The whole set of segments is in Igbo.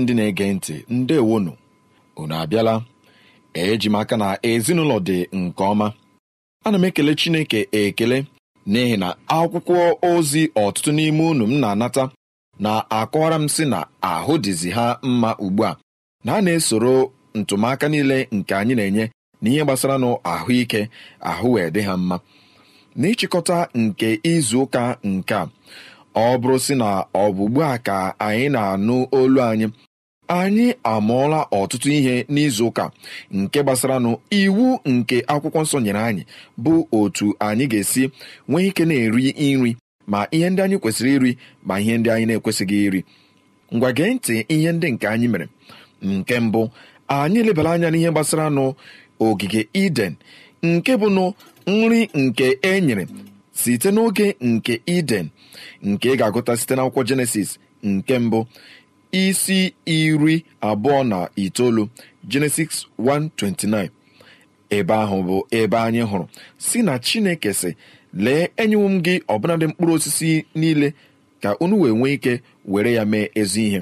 ndị na-ege ntị ndewonu unu abịala eji m aka na ezinụlọ dị nke ọma ana m ekele Chineke ekele n'ihi na akwụkwọ ozi ọtụtụ n'ime unu m na-anata na-akọwara m si na ahụ dịzi ha mma ugbu a na a na-esoro ntụmaka niile nke anyị na-enye na ihe gbasara nụ ahụike ahụ wee dị ha mma n'ịchịkọta nke izu ụka nke a ọ bụrụ sị na ọ bụ ugbu a ka anyị na-anụ olu anyị anyị amụọla ọtụtụ ihe n'izu ụka nke gbasaranụ iwu nke akwụkwọ nsọ nyere anyị bụ otu anyị ga-esi nwee ike na-eri nri ma ihe ndị anyị kwesịrị iri ma ihe ndị anyị na-ekwesịghị iri ngwa gee ntị ihe ndị nke anyị mere nke mbụ anyị lebara anya n'ihe gbasara nụ ogige iden nke bụ nri nke e nyere site n'oge nke iden nke ị ga-agụta site n'akwụkwọ jenesis nke mbụ isi iri abụọ na itoolu Genesis 1:29 ebe ahụ bụ ebe anyị hụrụ si na Chineke si lee enyewo m gị ọbụnadị mkpụrụ osisi niile ka unu wee nwee ike were ya mee ezi ihe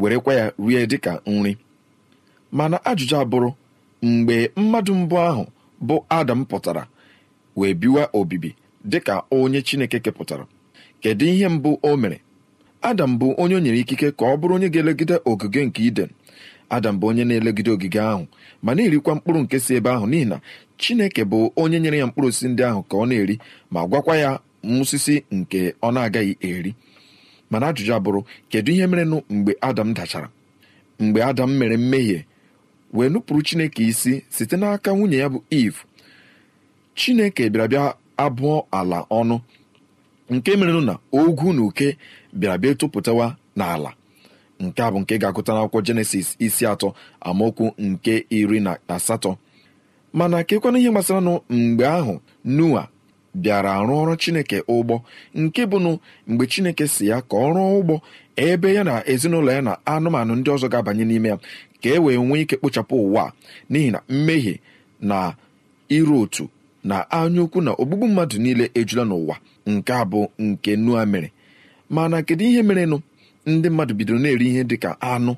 werekwa ya rie dịka nri mana ajụjụ abụrụ mgbe mmadụ mbụ ahụ bụ Adam pụtara wee biwa obibi dịka onye Chineke kepụtara kedu ihe mbụ o mere adam bụ onye o nyere ikike ka ọ bụrụ onye ga-elegide ogige nke iden adam bụ onye na-elegide ogige ahụ ma na-erikwa mkpụrụ nke si ebe ahụ n'ihi na chineke bụ onye nyere ya mkpụrụ osisi ndị ahụ ka ọ na-eri ma gwakwa ya msisi nke ọ na-agaghị eri mana ajụjụ abụrụ kedu ihe merenụ mgbe adam dachara mgbe adam mere mmehie wee nupụrụ chineke isi site n'aka nwunye ya bụ eve chineke bịara bịa abụọ ala ọnụ nke merenụ na ogwu na uke bịara bịa tụpụtawa n'ala nke a bụ nke ga-agụta n'akwụkwọ jenesis isi atọ amaokwu nke iri na asatọ mana kekwana ihe gbasara nụ mgbe ahụ noa bịara arụ ọrụ chineke ụgbọ nke bụnụ mgbe chineke si ya ka ọ rụọ ụgbọ ebe ya na ezinụlọ ya na anụmanụ ndị ọzọ ga-abanye n'ime ya ka e wee nwee ike kpochapụ ụwa n'ihi na mmehie na iru otu na anyaukwu na ogbugbu mmadụ niile ejula n'ụwa nke a bụ nke nua mere mana kedu ihe merenụ ndị mmadụ bidoro na-eri ihe dị ka anụ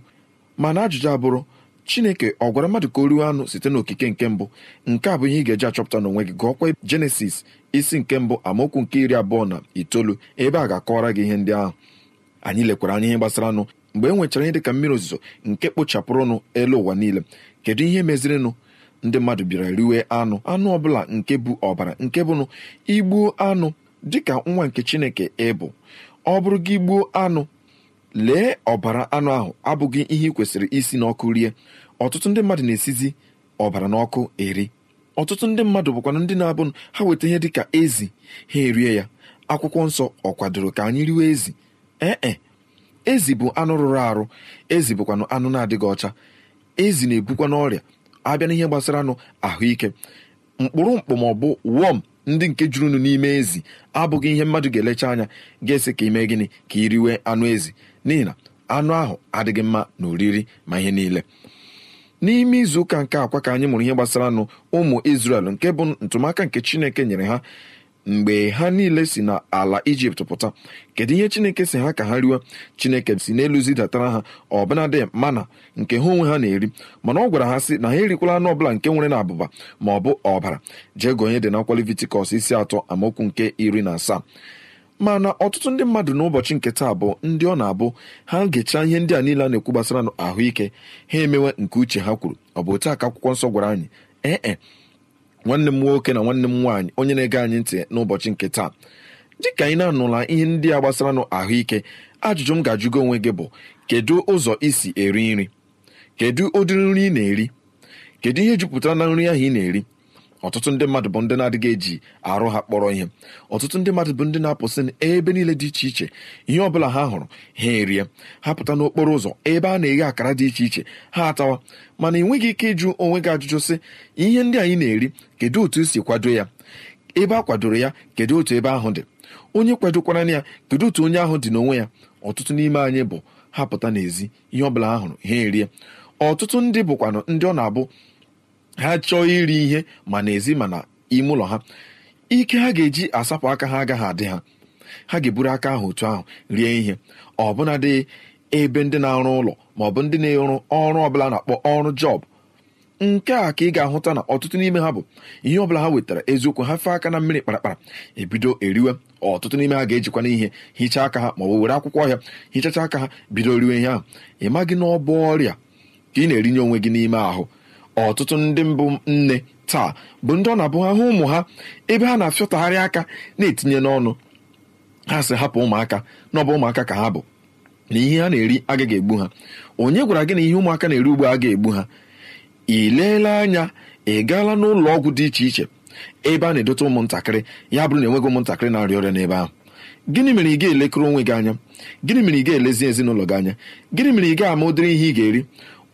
mana ajụjụ abụrụ chineke ọ gwara mmadụ ka o riwe anụ site n'okike nke mbụ nke a bụ ihe ị ga-eji achọpụta n'onwe gị gụọkwa jenesis isi nke mbụ amaokwu nke iri abụọ na itoolu ebe a ga-akọwara gị ihe ndị ahụ anyị lekwara anya ihe gbasara anụ mgbe e nwechara ihe dị ka mmiri ozuzo nke kpochapụrụnụ elu ụwa niile kedu ihe mezirinụ ndị mmadụ bịara riwe anụ anụ ọbụla nke bụ ọbara nke bụnụ igbuo anụ dịka nwa nke chineke ịbụ ọ bụrụ gị gbuo anụ lee ọbara anụ ahụ abụghị ihe ị kwesịrị isi n'ọkụ rie ọtụtụ ndị mmadụ na-esizi ọbara n'ọkụ eri ọtụtụ ndị mmadụ bụkwana ndị na-abụnụ ha weta ihe dịka ezi ha erie ya akwụkwọ nsọ ọ kwadoro ka anyị riwe ezi ee eh, eh. ezi bụ anụ rụrụ arụ ezi bụkwanụ anụ na-adịghị ọcha ezi na-ebukwa n'ọrịa abịa n'ihe gbasara anụ ahụike mkpụrụ mkpụ ma ọ bụ wọm ndị nke jurunu n'ime ezi abụghị ihe mmadụ ga-elecha anya ga ese ka ime gịnị ka i riwe anụ ezi n'ihi na anụ ahụ adịghị mma na oriri ma ihe niile n'ime izu ụka nke akwa ka anyị mụrụ ihe gbasara nụ ụmụ Izrel nke bụ ntụmaka nke Chineke nyere ha mgbe ha niile si n'ala ijipt pụta kedu ihe chineke si ha ka ha riwe chineke si n'elu zidatara ha ọbụnadị mana nke ha onwe ha na-eri mana ọ gwara ha si na ha erikwala anụ ọbụla nke nwere na abụba ma ọ bụ ọbara jee gonye dị na Levitikọs isi atọ amaokwu nke iri na asaa mana ọtụtụ ndị mmadụ n'ụbọchị nke taa bụ ndị ọ na-abụ ha gechaa ihe ndị a niile a na-ekwu gbasara ahụike ha emewe nke uche ha kwuru ọ bụ otu aka akwụkwọ nsọ gwara anyị ee nwanne m nwoke na nwanne m nwaanyị onye na-ege anyị ntị n'ụbọchị nke taa dịka anyị na-anụla ihe ndị a gbasara ahụike ajụjụ m ga-ajụgo onwe gị bụ kedu ụzọ isi eri nri kedu ụdịrị nri ị na-eri kedu ihe jupụtara na nri ahụ ị na-eri ọtụtụ ndị mmadụ bụ ndị na-adịghị eji arụ ha kpọrọ ihe ọtụtụ ndị mmadụ bụ ndị na-apụsị ebe niile dị iche iche ihe ọbụla ha hụrụ ha erie ha pụta n'okporo ụzọ ebe a na-eghe akara dị iche iche ha atawa mana ị nweghị ike ịjụ onwe gị ajụjụ sị ihe ndị anyị na-eri kedu otu esi kwado ya ebe a kwadoro ya kedu otu ebe ahụ dị onye kwadokwara ya kedu otu onye ahụ dị n'onwe ya ọtụtụ n'ime anyị bụ ha pụta n'ezi ihe ọbụla ha hụrụ ha erie ọtụtụ ndị bụkwanụ ndị ọ na-abụ ha chọọ iri ihe ma n'ezi ma na ime ụlọ ha ike ha ga-eji asapụ aka ha agaghị adị ha ha ga-eburu aka ahụ otu ahụ rie ihe ọbụna dị ebe ndị na-arụ ụlọ ma ọ bụ ndị na-arụ ọrụ ọbụla na-akpọ ọrụ jọb nke a ka ị ga-ahụta na ọtụtụ n'ime ha bụ ihe ọbụla ha wetara eziokwu ha fee aka na mmiri kparakpara ebido eriwe ọtụtụ n'ime ha ga-ejikwana ihe hichaa aka ha ma ọ were akwụkwọ ọhịa hichacha aka ha bido riwe ihe ahụ ị maghị na ọ bụ ọrịa ka ị na-erinye onwe gị n'ime ahụ ọtụtụ ndị mbụ nne taa bụ ndị ọ na-abụ ha hụ ụmụ ha ebe ha na-afịọtagharị aka na-etinye n'ọnụ ha si hapụ ụmụaka na ọ bụ ụmụaka ka ha bụ na ihe ha na-eri agaghị egbu ha onye gwara gị na ihe ụmụaka na-eri ugbo agaghị egbu ha ị leela anya ị gaala n'ụlọ ọgwụ dị iche iche ebe a na-edote ụmụntakịrị ya bụrụ na enweghị ụmụntakịrị na-arịa ọrịa n'ebe ahụ gịnị mere ị ga-elekere onwe gị anya gịnị mere ị ga-elezi ezinụlọ gị anya gịnị mere ị ga-ama ụdịrị ihe ị ga-eri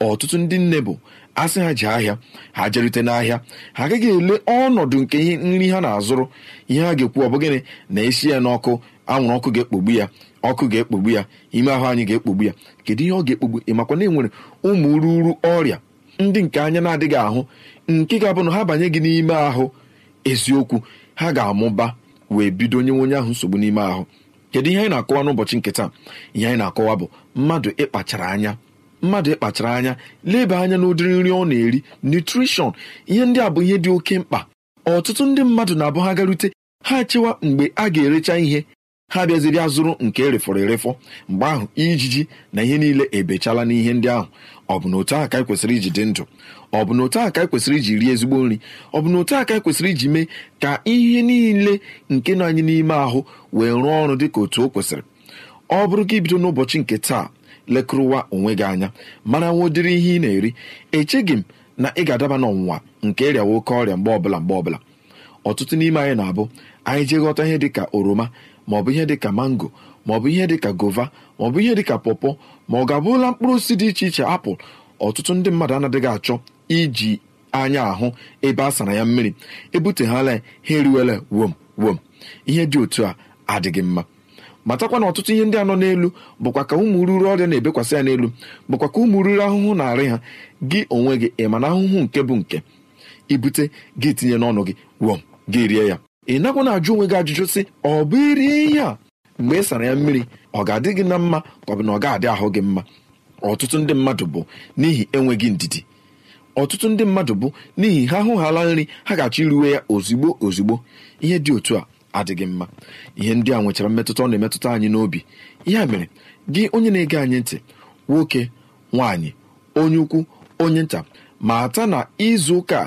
ọtụtụ ndị nne bụ asị ha ji ahịa ha jerute n'ahịa ha agaghị ele ọnọdụ nke ihe nri ha na-azụrụ ihe ha ga-ekwu ọ bụ gịnị na esi ya n'ọkụ anwụrụ ọkụ ga-ekpogbu ya ọkụ ga-ekpogbu ya ime ahụ anyị ga-ekpogbu ya kedu ihe ọ ga-ekpogbu ịmakwa na enwere ụmụ ruru ọrịa ndị nke anya na-adịghị ahụ nke ga-abụ na ha banye gị n'ime ahụ eziokwu ha ga-amụba wee bido onye onye ahụ nsogbu n'ime ahụ kedu ihe anyị na-akọwa n'ụbọchị nke taa ihe anyị na-akọwa bụ mmadụ ịkpachara anya mmadụ ịkpachara anya leba anya n'ụdịrị nri ọ na-eri nutrishọn ihe ndị a bụ ihe dị oke mkpa ọtụtụ ndị mmadụ na-abụ ha garute ha chewa mgbe a ga-erecha ihe ha bịaziri azụrụ nke erefọrọ erefọ mgbe ahụ ijiji na ihe niile ebechala n'ihe ndị ahụ ọ bụ na otu aka ekwesịrị kwesịrị iji dị ndụ ọ bụ na otu aka ka e kwesịrị iji rie ezigbo nri ọ bụ na otu aka ekwesịrị iji mee ka ihe niile nke nọ anyị n'ime ahụ wee rụọ ọrụ dị ka otu o kwesịrị ọ bụrụ ka bido n'ụbọchị nke taa lekụrụwa onwe gị anya mana nwa ụdịrị ihe ị na-eri echeghị m na ị ga-adaba n'ọnwụnwa nke ịrịa oke ọrịa mgbe ọbụla mgbe ọbụla ọtụtụ n'ime anyị na-abụ anyị jee ghọta ihe dịka oroma maọbụ ihe dịka mango maọbụ ihe dịka gova maọbụ ihe dịka pọpọ ma ọ ga abụla mkpụrụ osisi dị iche iche apụl ọtụtụ ndị mmadụ anadịghị achọ iji anya ahụ ebe a sara ya mmiri ebuteghala ya ha eriwela wom wom ihe dị otu a adịghị mma matakwa na ọtụtụ ihe ndị a nọ n'elu bụkwa ka ụmụ ruru ọrịa na-ebekwasị ya n'elu bụkwa ka ụmụ ruru ahụhụ na-arị ha gị onwe gị ịma na ahụhụ nke bụ nke ibute gị tinye n'ọnụ gị wọm gị rie ya ị nakwa na-ajụ onwe gị ajụjụ sị ọ bụ irie ihe a mgbe ị sara ya mmiri ọ ga-adị gị na mma ka ọ bụ na ọ ga-adị ahụ gị mma ọtụtụ ndị mmadụ bụ n'ihi enweghị ndidi ọtụtụ ndị mmadụ bụ n'ihi ha ahụghala nri ha ga-achọ iruwe ya ozigbo ozugbo ihe dị otu a adịghị mma ihe ndị a nwechara mmetụta ọ na-emetụta anyị n'obi ya mere gị onye na-ege anyị ntị nwoke nwaanyị onye ukwu onye nta mata na izu ụka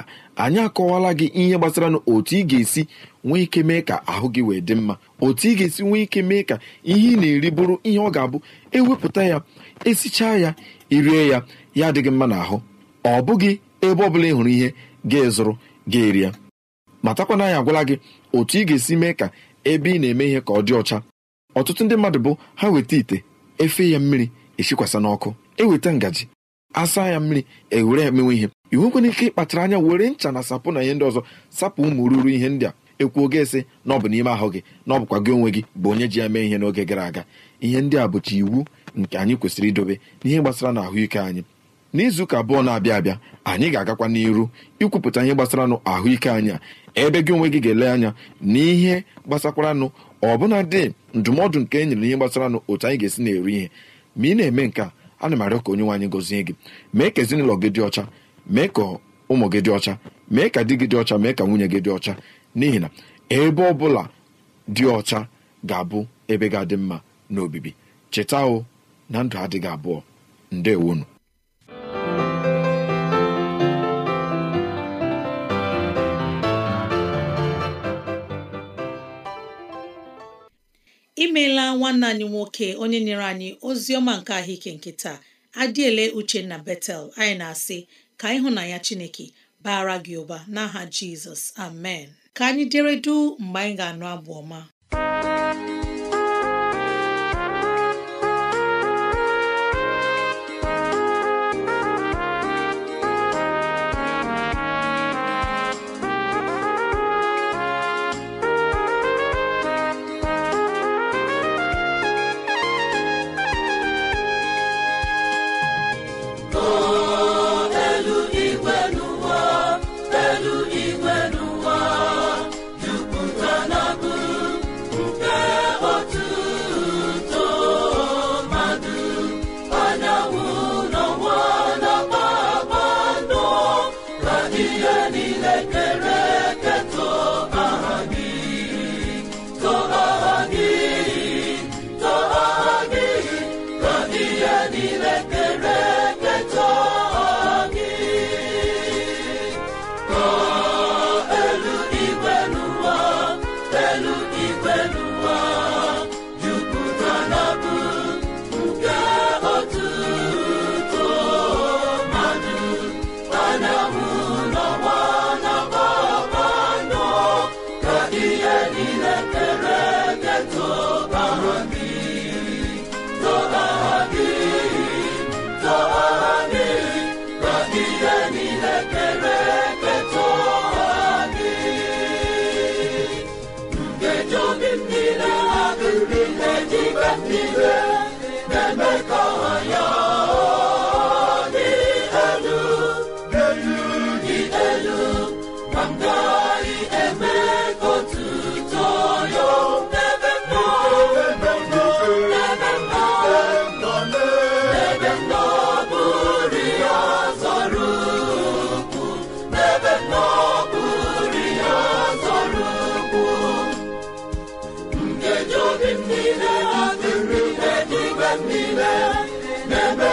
anyị akọwala gị ihe gbasara na otu ị ga-esi nwee ike mee ka ahụ gị wee dị mma otu ị ga-esi nwee ike mee ka ihe ị na-eri bụrụ ihe ọ ga-abụ ewepụta ya esichaa ya irie ya ya adịghị mma n'ahụ ọ bụghị ebe ọ bụla ị hụrụ ihe ga-ezụrụ ga-eri ya matakwana anyị agwala gị otu ị ga-esi mee ka ebe ị na-eme ihe ka ọ dị ọcha ọtụtụ ndị mmadụ bụ ha weta ite efe ya mmiri esikwasa n'ọkụ eweta ngaji asa ya mmiri ewere ya mewe ihe ị nwekwana ike ịkpachara anya were ncha na sapụ na ihe ndị ọzọ sapụ ụmụ ruru ihe ndị a ekwuo oge ese na ọ bụ n'ime ahụ gị na ọ bụkwa gị onwe gị bụ onye ji ya mee ihe n'oge gara aga ihe ndị a bụcha iwu nke anyị kwesịrị idobe n'ihe gbasara na ahụike anyị n'izu ụka abụọ na-abịa abịa anyị ga-agakwa n'iru ikwupụta ihe gbasara ahụike anyị a ebe gị onwe gị ga-ele anya n'ihe gbasakwaranụ bụla dị ndụmọdụ nke e nyere ihe gbasaranụ otu anyị ga-esi na-eri ihe ma ị na-eme nke a ana m arịọ ka onye nwe gozie gọzie gị mee ka ezinụlọ gị dị ọcha mee ka ụmụ gị dị ọcha mee ka di gị dị ọcha mee ka nwunye gị dị ọcha n'ihi na ebe ọ bụla dị ọcha ga-abụ ebe ga-adị mma n'obibi cheta o na ndụ adịghị abụọ ndewonu imeela nwanne anyị nwoke onye nyere anyị ozi ọma nke ahụike nke taa uche na betel anyị na-asị ka na ya chineke bara gị ụba n'aha jizọs amen ka anyị dịredu mgbe anyị ga-anụ abụ ọma mgbe niile na-eme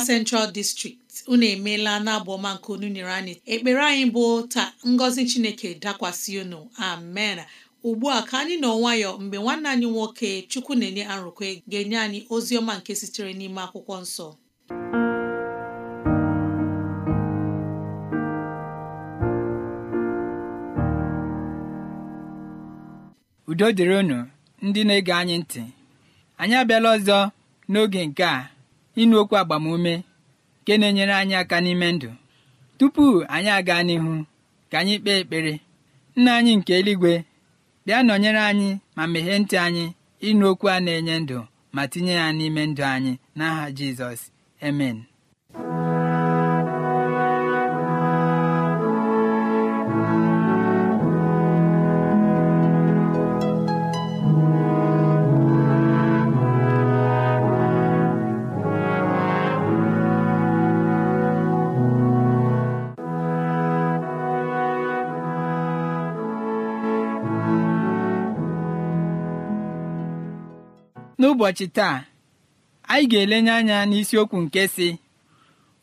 Central District unu emeela n'abụ ọma nke unu nyere anyị ekpere anyị bụ taa ngọzi Chineke dakwasị unu amen ugbu a ka anyị nọ nwayọ mgbe nwanne anyị nwoke chukwu na-enye arụkwe ga-enye anyị ozi ọma nke sitere n'ime akwụkwọ nsọ udo dịrị unu ndị na-ege anyị ntị anyị abịala ọzọ n'oge nke a ịnụ okwu agbamume nke na-enyere anyị aka n'ime ndụ tupu anyị aga n'ihu ka anyị kpee ekpere nna anyị nke eluigwe bịa nọnyere anyị ma meghee ntị anyị ịnụ a na-enye ndụ ma tinye ya n'ime ndụ anyị n'aha Jizọs Amen. n'ụbọchị taa anyị ga-elenye anya n'isiokwu nke si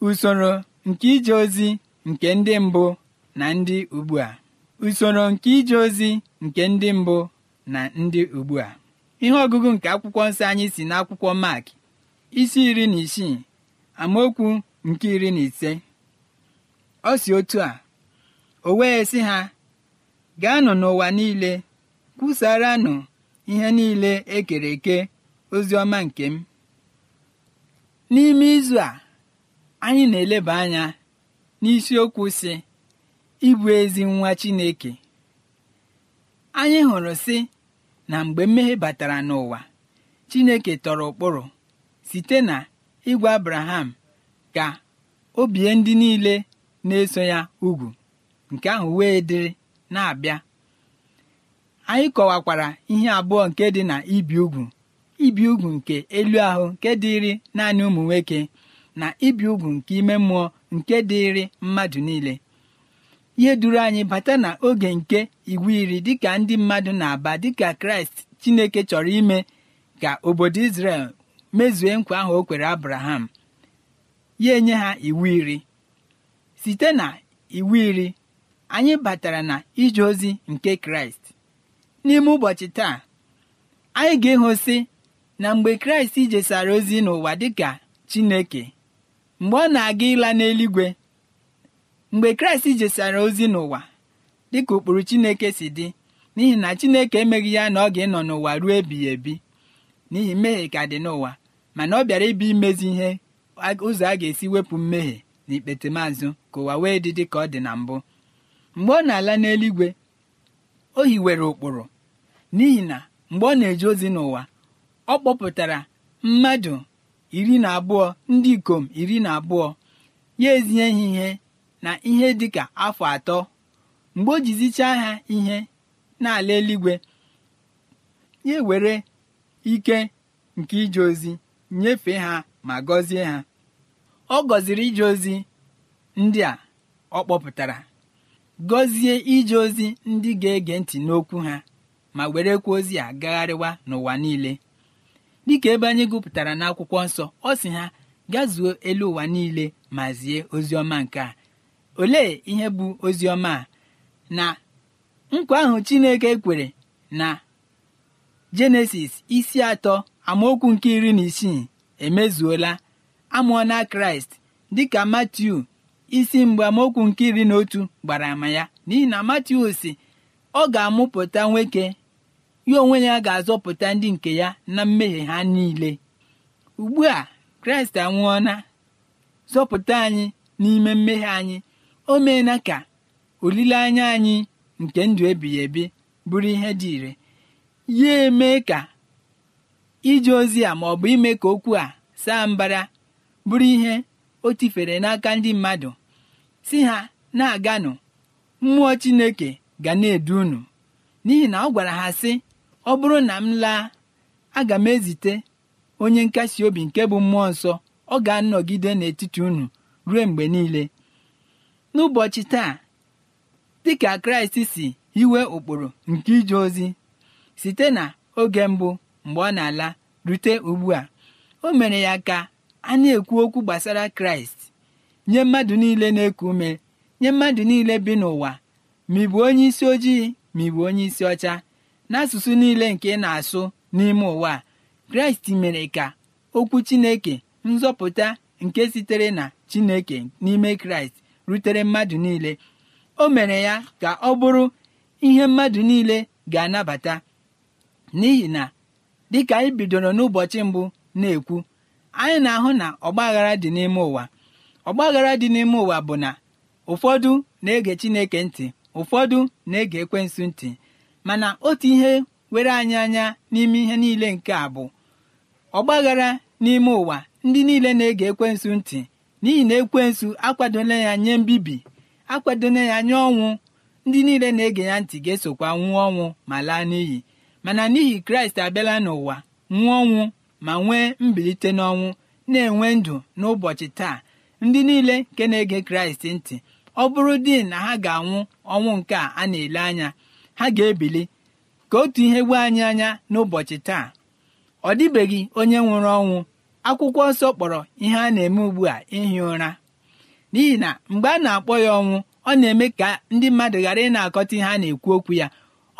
usoro nke ije ozi nke ndị mbụ na ndị ugbu a usoro nke ije ozi nke ndị mbụ na ndị ugbu ihe ọgụgụ nke akwụkwọ nsọ anyị si n'akwụkwọ Mark isi iri na isii amaokwu nke iri na ise ọ si otu a o wee sị ha gaanụ n'ụwa niile kwusaranụ ihe niile ekere eke ozi ọma nke m n'ime izu a anyị na-eleba anya n'isiokwu si ịbụ ezi nwa Chineke anyị hụrụ si na mgbe mmehie batara n'ụwa Chineke tọrọ ụkpụrụ site na ịgwa Abraham ka o bie ndị niile na-eso ya ugwu nke ahụ wee dịrị na-abịa anyị kọwakwara ihe abụọ nke dị na ibi ugwu ibi ugwu nke elu ahụ nke dịrị naanị ụmụ nwoke na ibi ugwu nke ime mmụọ nke dịrị mmadụ niile ihe duru anyị bata na oge nke iwu iri dịka ndị mmadụ na-aba dịka kraịst chineke chọrọ ime ka obodo Izrel mezue nkwa ahụ o kwere abraham ya enye ha iwu iri site na iwu iri anyị batara na ije ozi nke kraịst n'ime ụbọchị taa anyị ga-ehosi na mgbe kraịst jesara ozi n'ụwa dịka chineke mgbe ọ na-aga ịla n'eluigwe mgbe kraịst jesara ozi n'ụwa dịka ụkpụrụ chineke si dị n'ihi na chineke emeghị ya na ọ ga-ịnọ n'ụwa ruo ebighị ebi n'ihi mmehie ka dị n'ụwa mana ọ bịara ịbụ imezi ihe ụzọ a ga-esi wepụ mmehie na ikpete maazụ ka ụwa wee dị dị ka ọ dị na mbụ mgbe ọ na-ala n'eluigwe o hiwere ụkpụrụ n'ihi na mgbe ọ na-eje ozi n'ụwa ọ kpọpụtara mmadụ iri na abụọ ndị ikom iri na abụọ ya ezinye ha ihe na ihe dịka afọ atọ mgbe o jizichaa ha ihe n'ala eluigwe ya were ike nke ije ozi nyefee ha ma gọzie ha ọ gọziri ije ozi ndị a ọ kpọpụtara gọzie ije ozi ndị ga-ege ntị n'okwu ha ma werekwa ozi a gagharịwa n'ụwa niile dịka ebe anyị gụpụtara n'akwụkwọ nsọ ọ sị ha gazuo elu ụwa niile ma zie oziọma nke a olee ihe bụ oziọma a na nkwa ahụ Chineke kwere na Jenesis isi atọ amaokwu nke iri na isii emezuola amụọna Kraịst dịka Matiu isi mgbe amaokwu nke iri na otu gbara ama ya n'ihi na Matiu si ọ ga-amụpụta nwoke ya onwe ya ga-azọpụta ndị nke ya na mmehie ha niile ugbu a kraịst anwụọna zọpụta anyị n'ime mmehie anyị o meela ka olileanya anyị nke ndụ ebighị ebi bụrụ ihe dị ire ya eme ka ije ozi a ma ọ bụ ime ka okwu a saa mbara bụrụ ihe o tifere n'aka ndị mmadụ si ha na-aganụ mmụọ chineke ga na-edu unu n'ihi na ọ gwara ha sị ọ bụrụ na m laa aga m ezite onye nkasi obi nke bụ mmụọ nsọ ọ ga-anọgide n'etiti unu ruo mgbe niile n'ụbọchị taa dịka kraịst si iwe ụkpụrụ nke ije ozi site na oge mbụ mgbe ọ na-ala rute ugbu a o mere ya ka a na-ekwu okwu gbasara kraịst nye mmadụ niile na-eku ume nye mmadụ niile bi n'ụwa ma ị bụ onye isi ojii ma ị bụ onye isi ọcha n'asụsụ niile nke ị na-asụ n'ime ụwa kraịst mere ka okwu chineke nzọpụta nke sitere na chineke n'ime kraịst rutere mmadụ niile o mere ya ka ọ bụrụ ihe mmadụ niile ga-anabata n'ihi na dịka anyị bidoro n'ụbọchị mbụ na-ekwu anyị na-ahụ na ọgbaghara dị n'ime ụwa ọgbaghara dị n'ime ụwa bụ na ụfọdụ na-ege Chineke ntị ụfọdụ na-ege ekwensu ntị mana otu ihe were anyị anya n'ime ihe niile nke a bụ ọgbaghara n'ime ụwa ndị niile na-ege ekwensu ntị n'ihi na ekwensu akwadola ya nye mbibi akwadola ya nye ọnwụ ndị niile na-ege ya ntị ga-esokwa nwụọ ọnwụ ma laa n'iyi mana n'ihi kraịst abịala n'ụwa nwụọ ọnwụ ma nwee mbilite n'ọnwụ na-enwe ndụ n'ụbọchị taa ndị niile nke na-ege kraịst ntị ọ bụrụ di na ha ga-anwụ ọnwụ nke a na-ele anya ha ga-ebili ka otu ihe gbuo anyị anya n'ụbọchị taa ọ dịbeghị onye nwụrụ ọnwụ akwụkwọ nsọ kpọrọ ihe a na-eme ugbu a ihi ụra n'ihi na mgbe a na-akpọ ya ọnwụ ọ na-eme ka ndị mmadụ ghara ị na-akọta ihe a na-ekwu okwu ya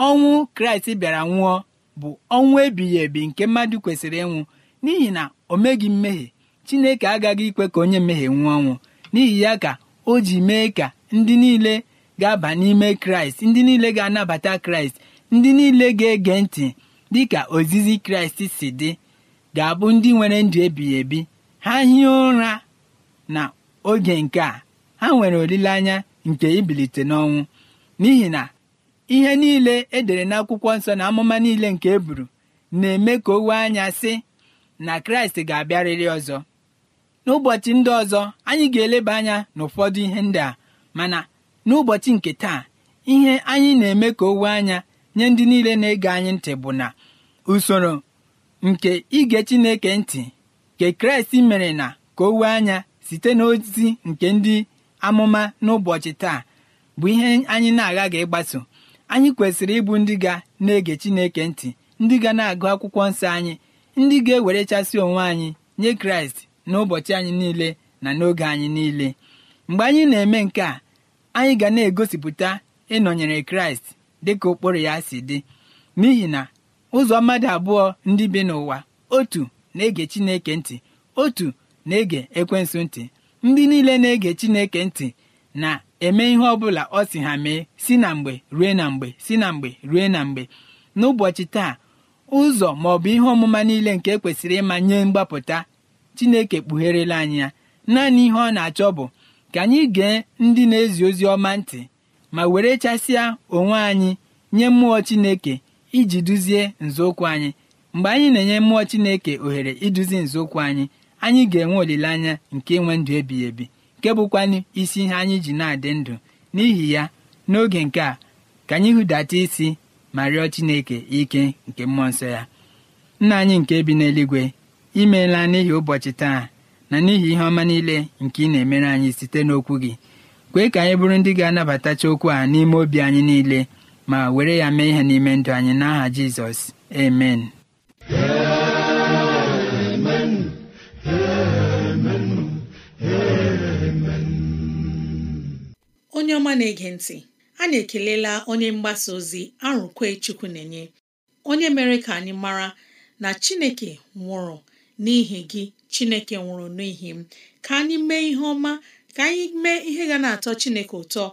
ọnwụ kraịst bịara nwụọ bụ ọnwụ ebighị ebi nke mmadụ kwesịrị ịnwụ n'ihi na o meghị mmehie chineke agaghị ikwe ka onye mmehie nwụọ ọnwụ n'ihi ya ka o ji mee ka ndị niile ga-aba n'ime kraịst ndị niile ga-anabata kraịst ndị niile ga-ege ntị dị ka ozizi kraịst si dị ga-abụ ndị nwere ndụ ebighị ebi ha hie ụra na oge nke a ha nwere olileanya nke ibilite n'ọnwụ n'ihi na ihe niile edere n'akwụkwọ nsọ na amụma niile nke e buru na-eme ka o wee anya sị na kraịst ga-abịarịrị ọzọ n'ụbọchị ndị ọzọ anyị ga-eleba anya n'ụfọdụ ihe ndị a mana n'ụbọchị nke taa ihe anyị na-eme ka owe anya nye ndị niile na-ege anyị ntị bụ na usoro nke ige Chineke ntị nke Kraịst mere na ka owe anya site n'ozi nke ndị amụma n'ụbọchị taa bụ ihe anyị na-aghaghị ịgbaso anyị kwesịrị ịbụ ndị ga na-ege Chineke ntị ndị ga na-agụ akwụkwọ nsọ anyị ndị ga-ewerechasị onwe anyị nye Kraịst n'ụbọchị anyị niile na n'oge anyị niile mgbe anyị na-eme nke a anyị ga na-egosipụta ịnọnyere kraịst dịka ụkpụrụ ya si dị n'ihi na ụzọ mmadụ abụọ ndị bi n'ụwa otu na-ege chineke ntị otu na-ege ekwensu ntị ndị niile na-ege chineke ntị na-eme ihe ọbụla ọ si ha mee si na mgbe rue na mgbe si na mgbe rue na mgbe n'ụbọchị taa ụzọ ma ọ bụ ihe ọmụma niile nke e kwesịrị ịma nye mgbapụta chineke kpugherela anyị ya naanị ihe ọ na-achọ bụ ka anyị gee ndị na-ezi ozi ọma ntị ma were chasịa onwe anyị nye mmụọ Chineke iji duzie nzọụkwụ anyị mgbe anyị na-enye mmụọ Chineke ohere iduzi nzọụkwụ anyị anyị ga-enwe olileanya nke inwe ndụ ebighị ebi nke bụkwanụ isi ihe anyị ji na-adị ndụ n'ihi ya n'oge nke a ka anyị hụdata isi ma rịọ Chineke ike nke mmụọ nsọ ya nna anyị nke bi n'eluigwe imeela n'ihi ụbọchị taa na n'ihi ihe ọma niile nke ị na-emere anyị site n'okwu gị kwee ka anyị bụrụ ndị ga-anabatacha okwu a n'ime obi anyị niile ma were ya mee ihe n'ime ndụ anyị n'aha Jizọs amen onye ọma na-ege ntị a na-ekelela onye mgbasa ozi arụkwe chukwu na-enye onye mere ka anyị mara na Chineke nwụrụ n'ihi gị Chineke nwụrụ n'ihi m ka anyị mee ihe ọma ka anyị mee ihe ga na-atọ Chineke ụtọ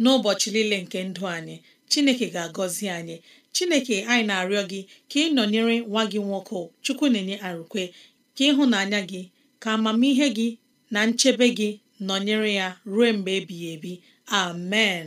n'ụbọchị niile nke ndụ anyị Chineke ga-agọzi anyị Chineke anyị na-arịọ gị ka ị nọnyere nwa gị nwoke Chukwu na-enye arụkwe ka ịhụnanya gị ka amamihe gị na nchebe gị nọnyere ya ruo mgbe ebighị ebi amen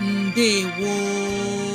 ndewo